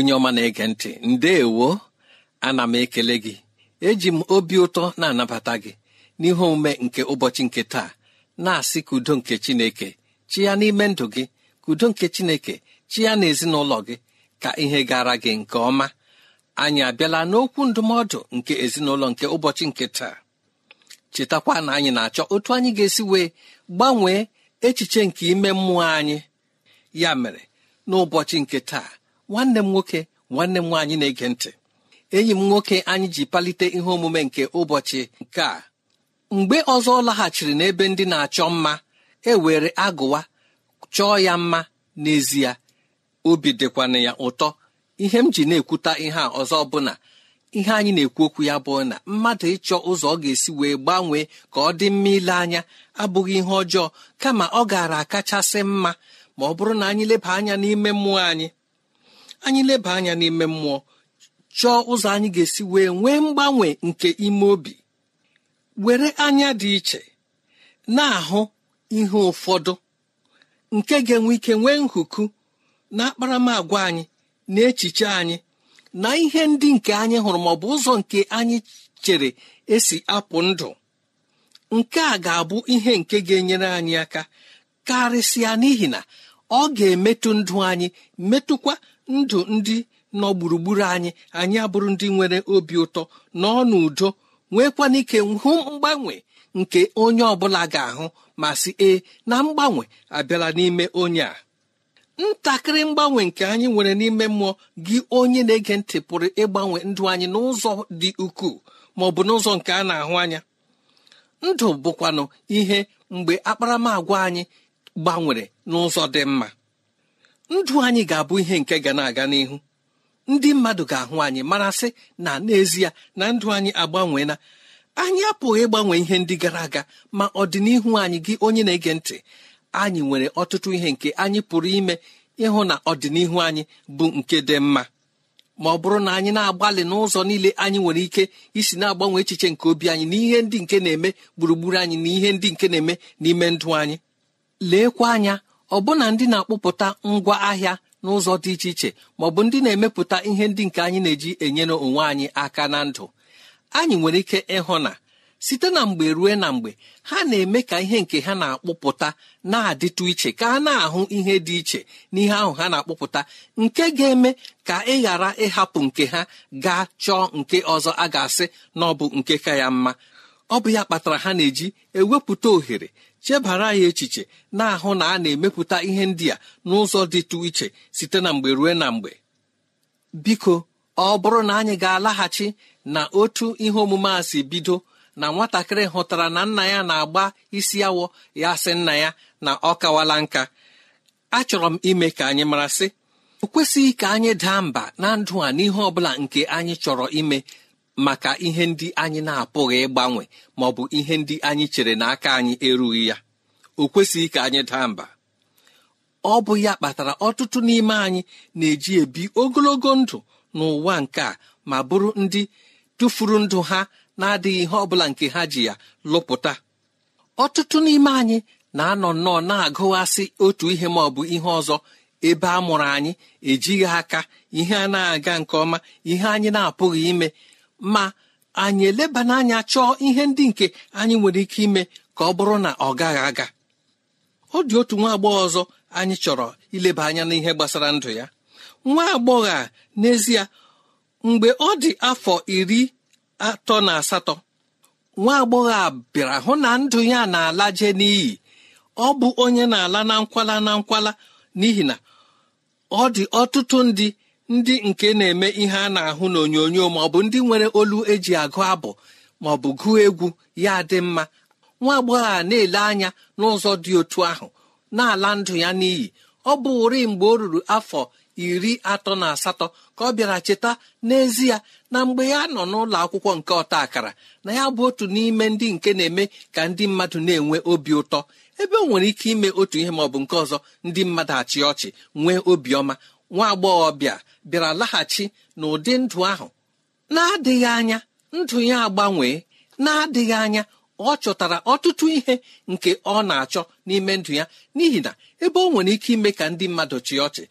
onye ọma na-ege ntị ndeewo ana m ekele gị eji m obi ụtọ na-anabata gị n'ihe omume nke ụbọchị nke taa na-asị ka udo nke chineke chi ya n'ime ndụ gị ka udo nke chineke chi ya na ezinụlọ gị ka ihe gara gị nke ọma anyị abịala n'okwu ndụmọdụ nke ezinụlọ nke ụbọchị nke taa chetakwa na anyị na-achọ otu anyị ga-esi wee gbanwee echiche nke ime mmụọ anyị ya mere n'ụbọchị nke taa nwanne m nwoke nwanne m nwaanyị na-ege ntị enyi m nwoke anyị ji palite ihe omume nke ụbọchị nke a mgbe ọzọ ọ laghachiri n'ebe ndị na-achọ mma e were agụwa chọọ ya mma n'ezie obi dịkwana ya ụtọ ihe m ji na-ekwuta ihe a ọzọ bụ na ihe anyị na-ekwu okwu ya bụ na mmadụ ịchọ ụzọ ọ ga-esi wee gbanwee ka ọ dị mma ile anya abụghị ihe ọjọọ kama ọ gaara akachasị mma ma ọ bụrụ na anyị leba anya n'ime mmụọ anyị anyị leba anya n'ime mmụọ chọọ ụzọ anyị ga-esi wee nwee mgbanwe nke ime obi were anya dị iche na-ahụ ihe ụfọdụ nke ga-enwe ike nwee nhuku na akparamagwa anyị na echiche anyị na ihe ndị nke anyị hụrụ ma bụ ụzọ nke anyị chere esi apụ ndụ nke a ga-abụ ihe nke ga-enyere anyị aka karịsịa n'ihi na ọ ga-emetụ ndụ anyị metụkwa ndụ ndị nọ gburugburu anyị anyị abụrụ ndị nwere obi ụtọ nọ n'udo nwekwana ike hụ mgbanwe nke onye ọbụla ga-ahụ ma si ee na mgbanwe abịala n'ime onye a ntakịrị mgbanwe nke anyị nwere n'ime mmụọ gị onye na-ege ntị pụrụ ịgbanwe ndụ anyị n'ụzọ dị ukwuu ma ọ bụ n'ụzọ nke a na-ahụ anya ndụ bụkwanụ ihe mgbe akparamagwa anyị gbanwere n'ụzọ dị mma ndụ anyị ga-abụ ihe nke ga na-aga n'ihu ndị mmadụ ga-ahụ anyị sị na n'ezie na ndụ anyị agbanweela anyị apụghị ịgbanwe ihe ndị gara aga ma ọdịnihu anyị gị onye na-ege ntị anyị nwere ọtụtụ ihe nke anyị pụrụ ime ịhụ na ọdịnihu anyị bụ nke dị mma ma ọ bụrụ na anyị na-agbalị n'ụzọ niile anyị nwere ike isi na-agbanwe echiche nke obi anyị na ihe ndị nke na-eme gburugburu anyị na ihe ndị nke na-eme n'ime ndụ anyị leekwa anya ọbụna ndị na-akpụpụta ngwa ahịa n'ụzọ dị iche iche ma ọ bụ ndị na-emepụta ihe ndị nke anyị na-eji enyere onwe anyị aka na ndụ anyị nwere ike ịhụ na site na mgbe ruo na mgbe ha na-eme ka ihe nke ha na-akpụpụta na-adịtụ iche ka a na-ahụ ihe dị iche n'ihe ahụ ha na-akpụpụta nke ga-eme ka ị ghara ịhapụ nke ha gaa chọọ nke ọzọ a ga-asị na ọ bụ nke ka ya mma ọ bụ ya kpatara ha na-eji ewepụta ohere chebara ya echiche na-ahụ na a na-emepụta ihe ndị a n'ụzọ dịtụ iche site na mgbe ruo na mgbe biko ọ bụrụ na anyị ga-alaghachi na otu ihe omume a si bido na nwatakịrị hụtara na nna ya na-agba isi awọ ya sị nna ya na ọ kawala nka achọrọ m ime ka anyị mara sị, o kwesịghị ka anyị daa mba na ndụ a n'ihe ọ nke anyị chọrọ ime maka ihe ndị anyị na-apụghị ịgbanwe ma ọ bụ ihe ndị anyị chere na aka anyị erughị ya o kwesịghị ka anyị daa mba ọ bụ ya kpatara ọtụtụ n'ime anyị na-eji ebi ogologo ndụ n'ụwa nke a ma bụrụ ndị tụfuru ndụ ha na-adịghị ihe ọ bụla nke ha ji ya lụpụta ọtụtụ n'ime anyị na-anọ nnọọ na-agụghasị otu ihe ma ọ bụ ihe ọzọ ebe a mụrụ anyị ejighị aka ihe a na-aga nke ọma ihe anyị na-apụghị ime ma anyị eleba n'anya chọọ ihe ndị nke anyị nwere ike ime ka ọ bụrụ na ọ gaghị aga ọ dị otu nwa agbọghọ ọzọ anyị chọrọ ileba anya n'ihe gbasara ndụ ya nwa agbọghọ a n'ezie mgbe ọ dị afọ iri atọ na asatọ nwa agbọghọ a bịara hụ na ndụ ya na-ala n'iyi ọ bụ onye na-ala na nkwala na nkwala n'ihi na ọ dị ọtụtụ ndị ndị nke na-eme ihe a na-ahụ n'onyonyo ma ọ bụ ndị nwere olu eji agụ abụ ma ọ bụ gụọ egwu ya dị mma nwa agbọghọ a na-ele anya n'ụzọ dị otu ahụ na-ala ndụ ya n'iyi ọ bụ ụri mgbe o ruru afọ iri atọ na asatọ ka ọ bịara cheta n'ezie na mgbe ya nọ n'ụlọ akwụkwọ nke ọta akara na ya bụ otu n'ime ndị nke na-eme ka ndị mmadụ na-enwe obi ụtọ ebe o nwere ike ime otu ihe ma ọ bụ nke ọzọ ndị mmadụ achị ọchị nwee obiọma nwa agbọghọbịa bịara laghachi n'ụdị ndụ ahụ na-adịghị anya ndụ ya agbanwee na-adịghị anya ọ chọtara ọtụtụ ihe nke ọ na-achọ n'ime ndụ ya n'ihi na ebe ọ nwere ike ime ka ndị mmadụ chịa ọchị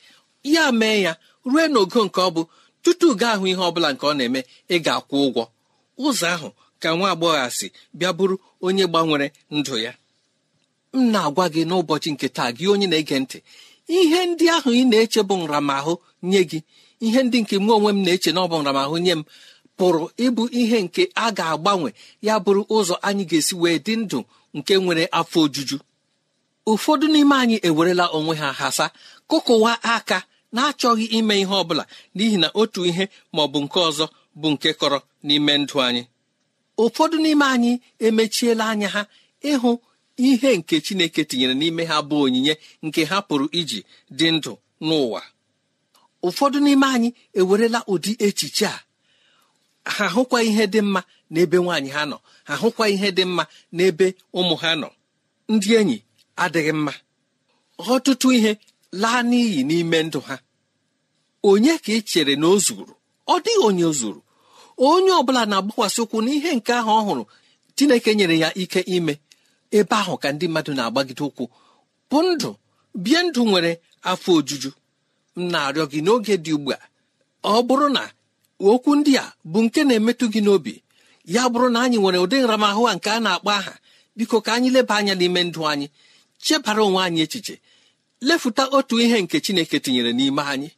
ya mee ya rue n'ogo nke ọ bụ tutu gaa ahụ ihe ọ bụla nke ọ na-eme ị ga-akwụ ụgwọ ụzọ ahụ ka nwa agbọghọ si bịa bụrụ onye gbanwere ndụ ya m na-agwa gị n'ụbọchị nke taa gị onye na-ege ntị ihe ndị ahụ ị na-eche bụ nramahụ nye gị ihe ndị nke mụ onwe m na-eche na ọ bụ nramahụ nye m pụrụ ịbụ ihe nke a ga-agbanwe ya bụrụ ụzọ anyị ga-esi wee dị ndụ nke nwere afọ ojuju ụfọdụ n'ime anyị ewerela onwe ha hasa kụkụwa aka na-achọghị ime ihe ọ bụla n'ihi na otu ihe ma ọ bụ nke ọzọ bụ nke kọrọ n'ime ndụ anyị ụfọdụ n'ime anyị emechiela anya ha ịhụ ihe nke chineke tinyere n'ime ha bụ onyinye nke ha pụrụ iji dị ndụ n'ụwa ụfọdụ n'ime anyị ewerela ụdị echiche a ha hụkwa ihe dị mma n'ebe nwaanyị ha nọ ha hụkwa ihe dị mma n'ebe ụmụ ha nọ ndị enyi adịghị mma ọtụtụ ihe laa n'iyi n'ime ndụ ha onye ka ị chere na o zuru ọ dịghị onye zuru onye ọ bụla na-agbakwasị ụkwụ n'ihe nke ahụ ọ hụrụ chineke nyere ya ike ime ebe ahụ ka ndị mmadụ na-agbagide ụkwụ bụ ndụ bie ndụ nwere afọ ojuju m na-arịọ gị n'oge dị ugbu a ọ bụrụ na okwu ndị a bụ nke na-emetụ gị n'obi ya bụrụ na anyị nwere ụdị nramahụ a nke a na-akpọ aha biko ka anyị leba anya n'ime ndụ anyị chebara onwe anyị echiche lefuta otu ihe nke chineke tinyere n'ime anyị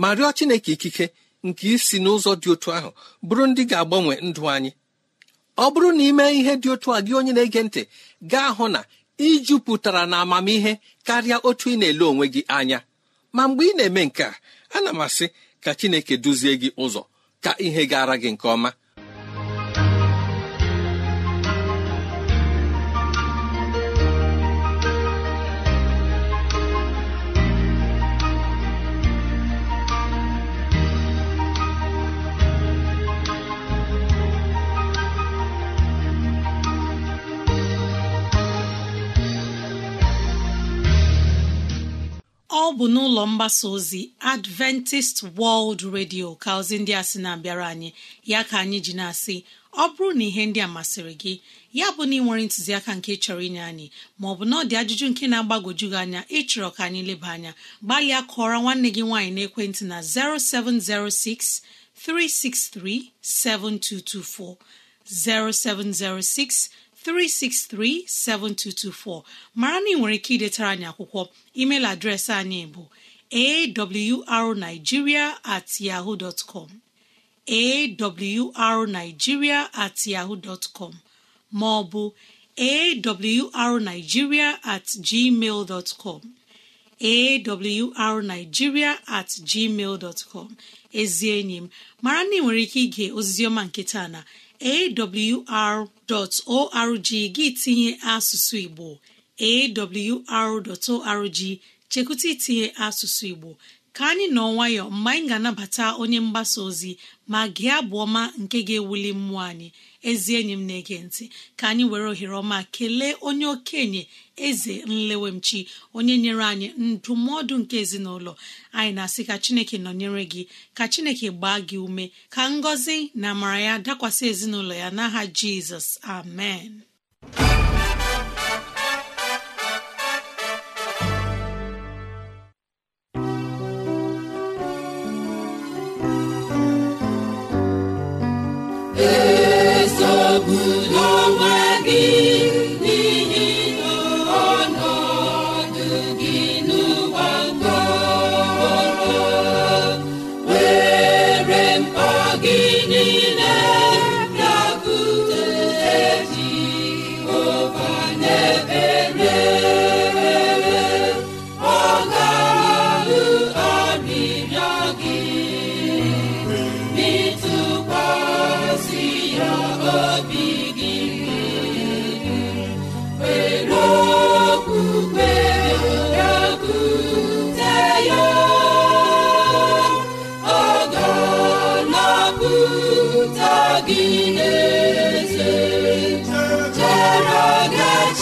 ma rịọ chineke ikike nke isi n'ụzọ dị otu ahụ bụrụ ndị ga-agbanwe ndụ anyị ọ bụrụ na ị mee ihe dị otu a gị onye na-ege ntị gaa hụ na ị jupụtara na amamihe karịa otu ị na-ele onwe gị anya ma mgbe ị na-eme nke a ana m asị ka chineke duzie gị ụzọ ka ihe gara gị nke ọma ọ bụ n'ụlọ mgbasa ozi Adventist World Radio ka ozi ndị a sị na-abịara anyị ya ka anyị ji na-asị ọ bụrụ na ihe ndị a masịrị gị ya bụ na ị nwere ntụziaka nke chọrọ inye anyị maọbụ na ọ dị ajụjụ nke na agbagoju gị anya ịchọrọ ka anyị leba anya gbalịa kọọrọ nwanne gị nwaanyị n'ekwentị na 0706 363 7224 0706 363-7224 mara na ị nwere ike idetara anyị akwụkwọ email adreesị anyị bụ arigiria at at maọbụ ma ọ bụ at gmail com at gmail ezi enyi m mara na ị nwere ike ige ozizioma nke taa na awr.org gị tinye asụsụ Igbo awr.org chekwụta itinye asụsụ Igbo ka anyị nọ nwayọ mgbe anyị ga-anabata onye mgbasa ozi ma gị abụ ọma nke ga-ewuli mmụọ anyị ezi enyi m na-ege ntị ka anyị were ohere ọma kelee onye okenye eze nlewemchi onye nyere anyị ndụmọdụ nke ezinụlọ anyị na-asị ka chineke nọnyere gị ka chineke gbaa gị ume ka ngọzi na amara ya dakwasị ezinụlọ ya n'aha jizọs amen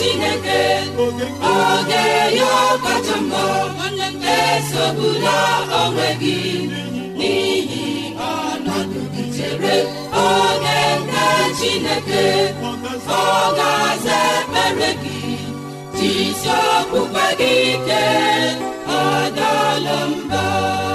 chineke oge ya kacha mma esogbula onwe gị n'ihi ọnọdụ gị chere oge nke chineke ọ ga-aza ekpere gị jisi okpukpe gị ike ọ mba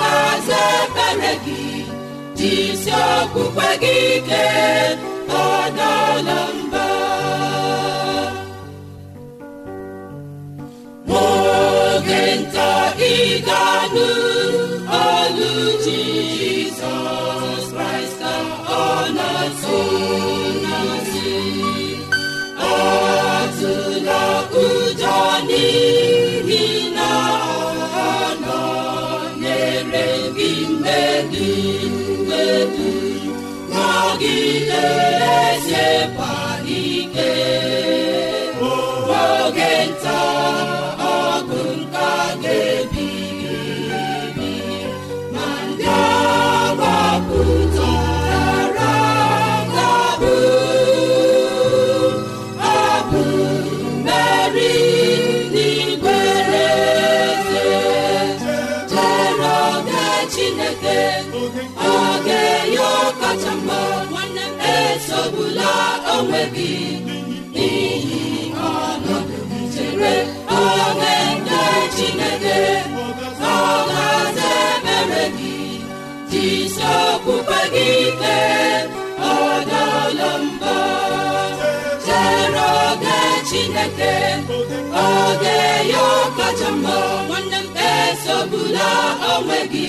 ga-aza ekpere gị jisi okpukpe gị ike ọdala mba n'oge nta ị ga-anụ olu Jizọs Kraịst ọ na-asụ Qui te jisi okpukpe gị ike ọdala mba chere chineke oge ya ọkacha mma esogbula onwe gị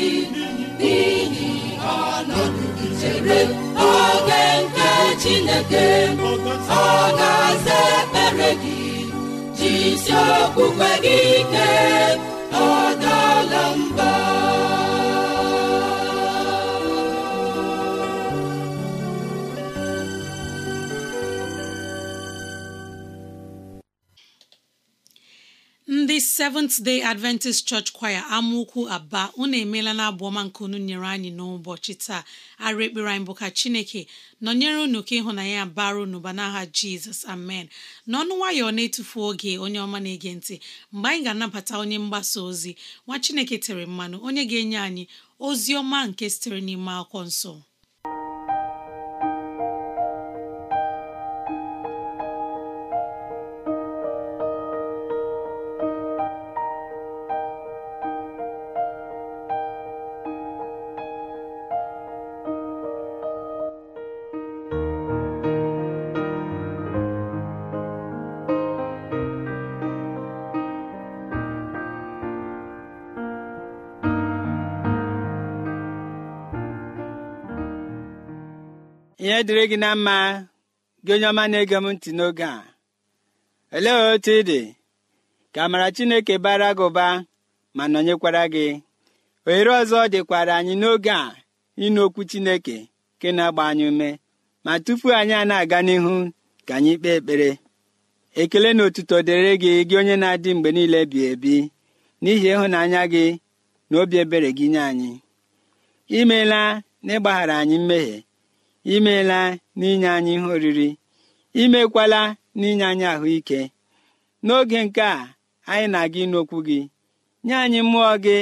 n'ihi ọnọdụ chere oge nke chineke ọ ga-aza gị jisi okpukpe gị ike ndị Seventh Day Adventist Church Choir amaokwu aba unu emeela na abụ ọma nke unu nyere anyị n'ụbọchị taa arụ ekpere anyị bụ ka Chineke nọnyere unu ka ịhụnanya ya bara unu ba n'aha Jizọs amen n'ọnụ nwayọọ na-etufu oge onye ọma na-ege ntị mgbe anyị ga-anabata onye mgbasa ozi nwa Chineke tere mmanụ onye ga-enye anyị ozi ọma nke sitere n'ime akwụkwọ nsọ ihe dịrị gị na mma gị onye ọma na-ege m ntị n'oge a olee otu ị dị ka amara chineke bara gị ụba ma nọnyekwara gị ohere ọzọ dịkwara anyị n'oge a ịnụ okwu chineke nke na-agba anyị ume ma tupu anyị a na-aga n'ihu ka anyị kpee ekpere ekele na otuto dịrị gị gị onye na-adị mgbe niile bi ebi n'ihi ịhụnanya gị na obi ebere gị nye anyị imeela na ịgbaghara anyị mmehie imeela n'inye anyị ihe oriri imekwala n'inye anyị ahụike n'oge nke a anyị na-aga ịnụ okwu gị nye anyị mmụọ gị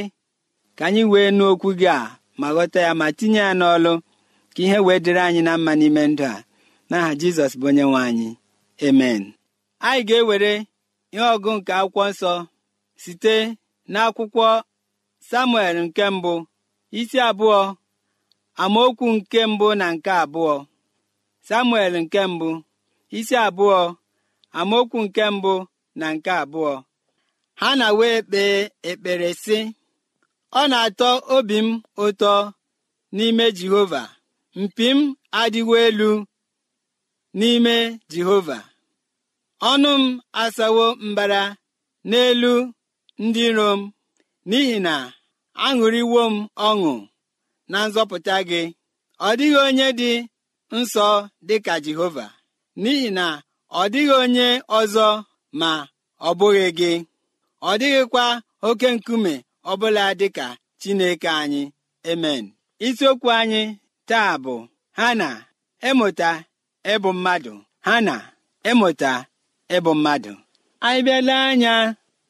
ka anyị wee nụ okwu gị a ma ghọta ya ma tinye ya n'ọlụ ka ihe wee dịrị anyị na mma n'ime ndụ a n'aha jizọs bụ onye nwe anyị emen anyị ga-ewere ihe ọgụ nke akwụkwọ nsọ site n'akwụkwọ samuel nke mbụ isi abụọ amaokwu nke mbụ na nke abụọ samuel nke mbụ isi abụọ amaokwu nke mbụ na nke abụọ ha na wee kpee ekpere sị ọ na-atọ obi m ụtọ n'ime jehova mpi m adịwo elu n'ime jehova ọnụ m asawo mbara n'elu ndị iro m n'ihi na aṅụrịwo m ọṅụ na nzọpụta gị ọ dịghị onye dị nsọ dị ka Jehova n'ihi na ọ dịghị onye ọzọ ma ọ bụghị gị ọ dịghịkwa oke nkume ọbụla dị ka Chineke anyị emen isiokwu anyị taa bụ ha na ịmụta ịbụ mmadụ ha na ịmụta ịbụ mmadụ anyị bịala anya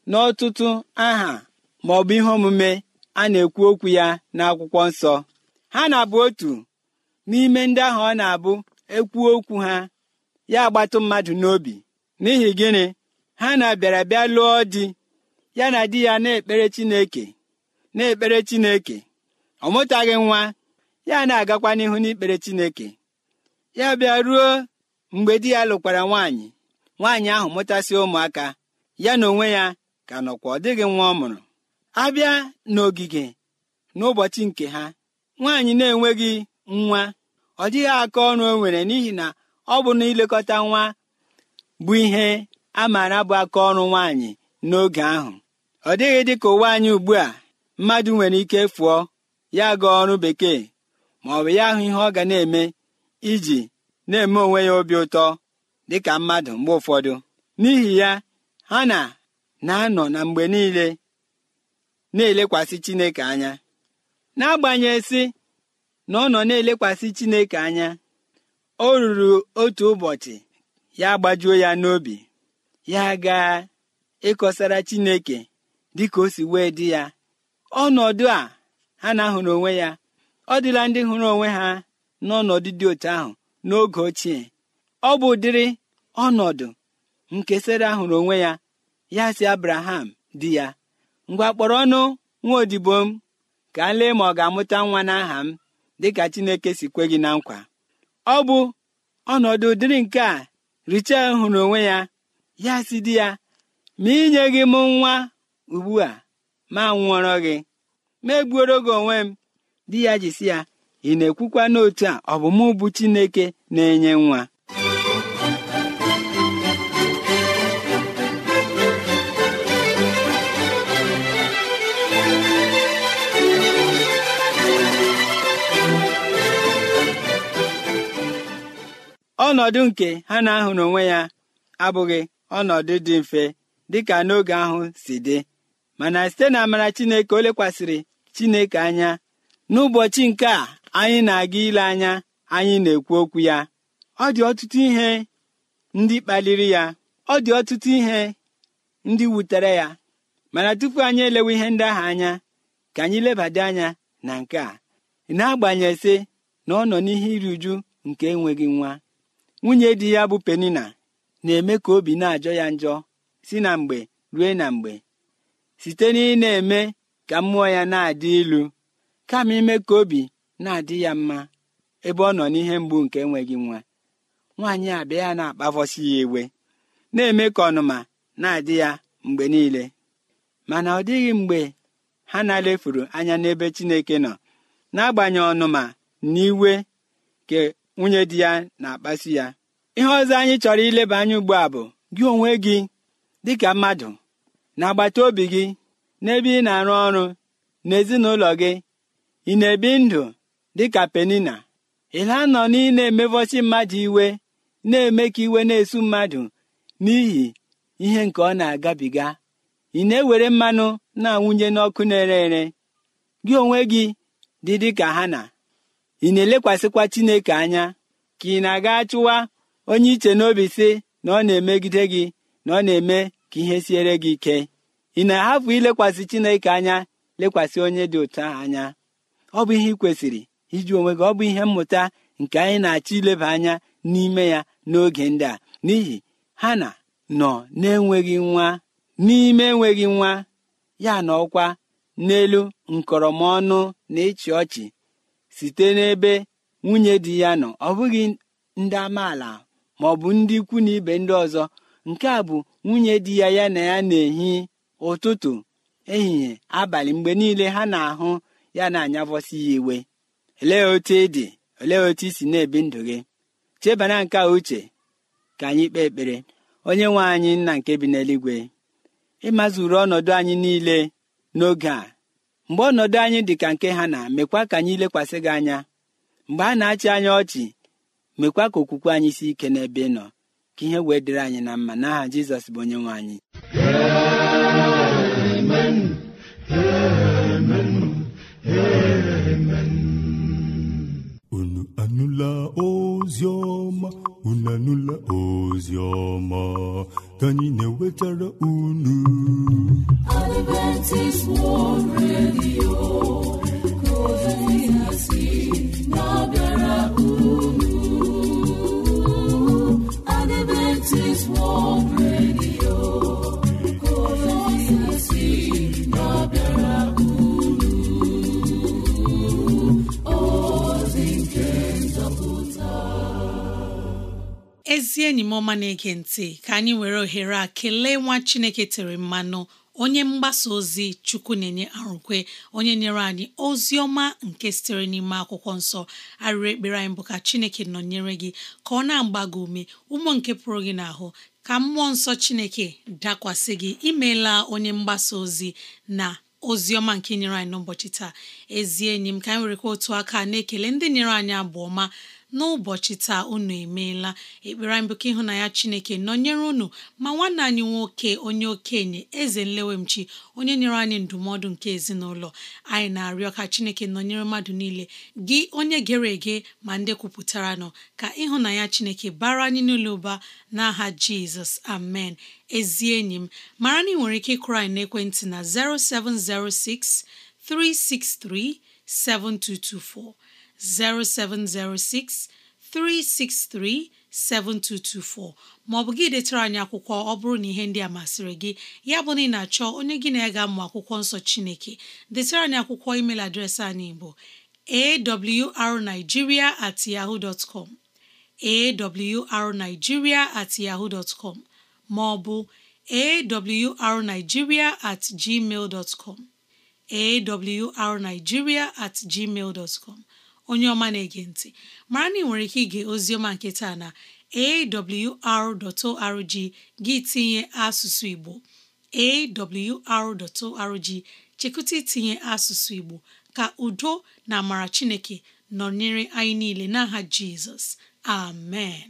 n'ọtụtụ aha ma ihe omume a na-ekwu okwu ya n'akwụkwọ nsọ ha na-abụ otu n'ime ndị ahụ ọ na-abụ ekwu okwu ha ya agbatụ mmadụ n'obi n'ihi gịnị ha na-abịara bịa lụọ di ya na di ya na-ekpere chineke na-ekpere chineke ọ mụtaghị nwa ya na-agakwa n'ihu n'ikpere chineke ya bịa ruo mgbe di ya lụkwara nwaanyị nwaanyị ahụ mụtasị ụmụaka ya na onwe ya ka nọkwa ọ dịghị nwa ọ mụrụ abịa n'ogige n'ụbọchị nke ha nwaanyị na-enweghị nwa ọ dịghị aka ọrụ o nwere n'ihi na ọ bụ na ilekọta nwa bụ ihe a maara bụ aka ọrụ nwaanyị n'oge ahụ ọ dịghị dị ka ụwa anyị ugbu a mmadụ nwere ike fụọ ya gaa ọrụ bekee ma ọ bụ ya ahụ ihe ọ ga na-eme iji na-eme onwe ya obi ụtọ dịka mmadụ mgbe ụfọdụ n'ihi ya ha na na-anọ na mgbe niile na-elekwasị chineke anya n'agbanyeghị na ọ nọ na-elekwasị chineke anya o ruru otu ụbọchị ya gbajuo ya n'obi ya ga ịkọsara chineke dịka o si wee dị ya ọnọdụ a ha na-ahụrụ onwe ya ọ dịla ndị hụrụ onwe ha n'ọnọdụ dị otu ahụ n'oge ochie ọ bụ udiri ọnọdụ nke sara hụrụ onwe ya ya si abraham di ya ngwa kpọrọ ọnụ nwa odibo m ka m lee ma ọ ga-amụta nwa n'aha m dịka Chineke si kwe gị na nkwa ọ bụ ọnọdụ dịrị nke a Richel hụrụ onwe ya ya si di ya ma inye gị m nwa ugbu a ma nwụọrọ gị ma egbuoro gị onwe m di ya ji si ya ị na-ekwukwa n'otu a ọ bụ Chineke na-enye nwa ọnọdụ nke ha na-ahụrụ onwe ya abụghị ọnọdụ dị mfe dịka n'oge ahụ si dị mana site na amara chineke o lekwasịrị chineke anya n'ụbọchị nke a anyị na-aga ile anya anyị na-ekwu okwu ya ọ dị ọtụtụ ihe ndị kpaliri ya ọ dị ọtụtụ ihe ndị wutere ya mana tupu anyị elewe ihe ndị ahụ anya ka anyị lebada anya na nke a na-agbanyesị na ọ nọ n'ihe iri uju nke enweghị nwa nwunye di ya bụ penina na-eme ka obi na-ajọ ya njọ si na mgbe rue na mgbe site na ị na-eme ka mmụọ ya na-adị ilu kama ime ka obi na-adị ya mma ebe ọ nọ n'ihe mgbu nke enweghị nwa nwaanyị abịa ya na-akpavọsi ya iwe na-eme ka ọnụma na-adị ya mgbe niile mana ọ dịghị mgbe ha na-alefuru anya n'ebe Chineke nọ n'agbanyeghị ọnụma na iwe nwunye di ya na-akpasu ya ihe ọzọ anyị chọrọ ileba anya ugbu a bụ gị onwe gị dịka mmadụ na agbata obi gị n'ebe ị na-arụ ọrụ n'ezinụlọ gị ị na-ebi ndụ dịka penina ịla nọ na ị na-emevọsi mmadụ iwe na-eme ka iwe na-esu mmadụ n'ihi ihe nke ọ na-agabiga ị na-ewere mmanụ na-awụnye n'ọkụ na-ere ere gị onwe gị dị dịka ha na ị na-elekwasịkwa chineke anya ka ị na-aga chụwa onye iche n'obi si na ọ na-emegide gị na ọ na-eme ka ihe siere gị ike ị na-ahapụ ilekwasị chineke anya lekwasị onye dị ụtọ anya ọ bụ ihe ị kwesịrị iji onwe gị ọ bụ ihe mmụta nke anyị na-achọ ileba anya n'ime ya n'oge ndị a n'ihi ha na nọ na-enweghị nwa n'ime enweghị nwa ya na ọkwa n'elu nkọrọmọnụ na ịchị ọchị site n'ebe nwunye di ya nọ ọ bụghị ndị amaala ma ọ bụ ndị ikwu na ibe ndị ọzọ nke a bụ nwunye di ya ya na ya na-ehi ụtụtụ ehihie abalị mgbe niile ha na-ahụ ya na-anyavọsi ya iwe olee otu ị dị olee otu isi si na-ebi ndụ gị chebana nke a uche ka anyị kpee ekpere onye nwe anyị nna nke bi n'eluigwe ịmazuru ọnọdụ anyị niile n'oge a mgbe ọnọdụ anyị dị ka nke ha na mekwa ka anyị lekwasị gị anya mgbe a na-achị anyị ọchị mekwa ka okwukwe anyị si ike n'ebe ị nọ ka ihe wee dịrị anyị na mma n'aha jizọs bụ onye nwe anyị onye unu anụla ka anyị na-ewetara unu Adventist World Radio ezi enyi m ọma na-ege ntị ka anyị were ohere a kelee nwa Chineke tere mmanụ onye mgbasa ozi chukwu na-enye arụkwe onye nyere anyị ozi ọma nke sitere n'ime akwụkwọ nsọ arịrị ekpere anyị bụ ka chineke nọnyere gị ka ọ na-agba gị ume ụmụ nke pụrụ gị n'ahụ ka mmụọ nsọ chineke dakwasị gị imeela onye mgbasa ozi na ozi ọma nke nyere anyị n'ụbọchị taa ezi enyi m ka anyị werekwa otu aka na-ekele ndị nyere anyị abụ ọma n'ụbọchị taa unu emeela ekpere anyị bụ ka ịhụnanya Chineke nọnyere unu ma nwanne anyị nwoke onye okenye eze nlewemchi onye nyere anyị ndụmọdụ nke ezinụlọ anyị na-arịọ ka Chineke nọnyere mmadụ niile gị onye gere ege ma ndị kwupụtara nọ ka ịhụnanya Chineke bara anyị n'ụlọ ụba n'aha Jizọs amen ezi enyi m mara na ị nwere ike ịkụrụ anyị n'ekwentị na 0706 363 7224 0706 363 7224 maọbụ gị detara anyị akwụkwọ ọ bụrụ na ihe ndị a masịrị gị ya bụ na ị na-achọ onye gị na ega ga akwụkwọ nsọ Chineke detara anyị akwụkwọ email adreesị anyị bụ arigiria at yahoo dot com awrnigeria at yahoo dot maọbụ awrnigeria at gmail dot com at gmail dot com onye ọma na-ege ntị mara na ị nwere ike ige oziọma nke taa na awr.org gị tinye asụsụ Igbo awr.org chekụta itinye asụsụ Igbo ka udo na amara Chineke nọnyere anyị niile n'aha Jizọs amen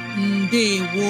ndewo